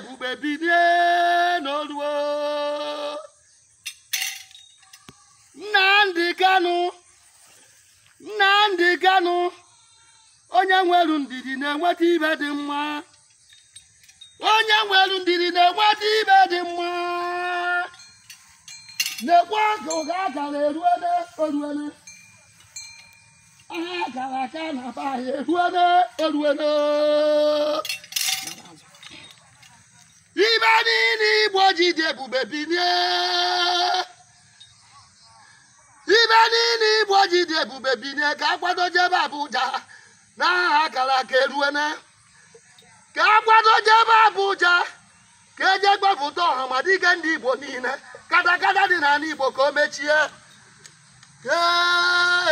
ebube bilie n'oluo Nnamdi Kanu Nnamdi Kanu onye nwelu ndidi na-enweta ibe dị mma onye nwelu ndidi na-enweta ibe dị mma na-ekwe ka ụga agara eruele oruele agara aka na be anyị eruele eruele igbo dị ebube ibe niile igbo ji dị ebube binye ka akwado jebe Abuja na akara aka eruene ka akwado jebe Abuja ka eje gbapụta ọha ma dịga ndị igbo niile katakata dị n'ala igbo ka o mechie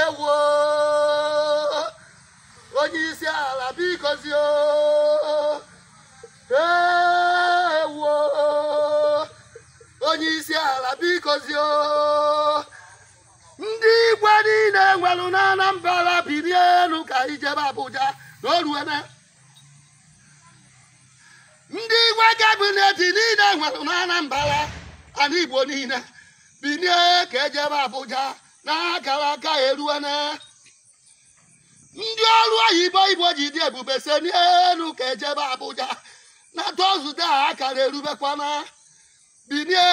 ewo onye isi ala bikozie onye isi ala bikozie ndị igwe niile nwere na Anambra bilie elu ka ijebe Abuja na oruene ndị igwe gabineti niile nwere na Anambra ana Igbo niile bilie ka ejebe Abuja na akara aka eruene ndị ọrụ oyibo igbo ji dị ebube se n'elu ka ejebe Abuja na tọzụde akara erubekwana bilie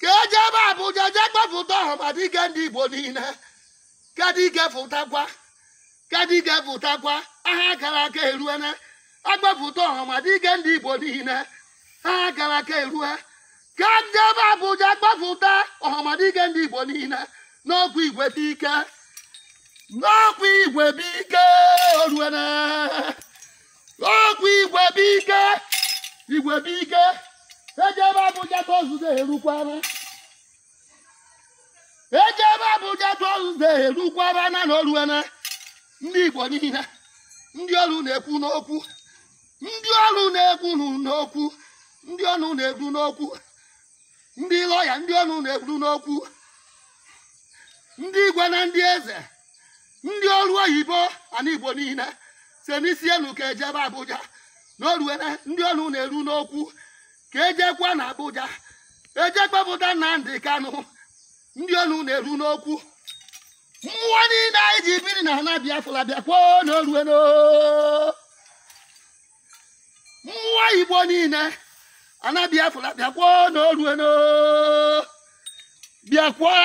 ka eji ebe abụja jee gbapụta ọhamadike ndị igbo niile kadike fụtakwa kadike fụtakwa aha gara aka eruene agbapụta ọhamadike ndị igbo niile aha gara aka erue ka ndị e ebe abụja gbapụta ọhamadike ndị igbo niile n'ọkwa igwe dike n'ọkwa igwe ike bike oruene n'ọkwa igwe ike! igwe ike! Abuja erukwana eje ebe Abuja tozụta erukwana na na oruena ndị Igbo niile ndị ọrụ na-ekwu n'okwu ndị ọrụ na-ekwu n'okwu ndị ọnụ na-ekwu n'okwu ndị lọya ndị ọnụ na-ekwu n'okwu ndị igwe na ndị eze ndị ọrụ oyibo ana igbo niile si n'isi ka ejebe Abuja na orue ndị ọnụ na-eru n'okwu ka ejekwa na Abuja ejekpepụta Nnamdi Kanu ndị onu na-eru n'okwu mmụọ niile anyị ji biri na ana Biafra bịakwuo n'orue mmụọ Igbo niile ana Biafra bịakwuo n'orue bịakwa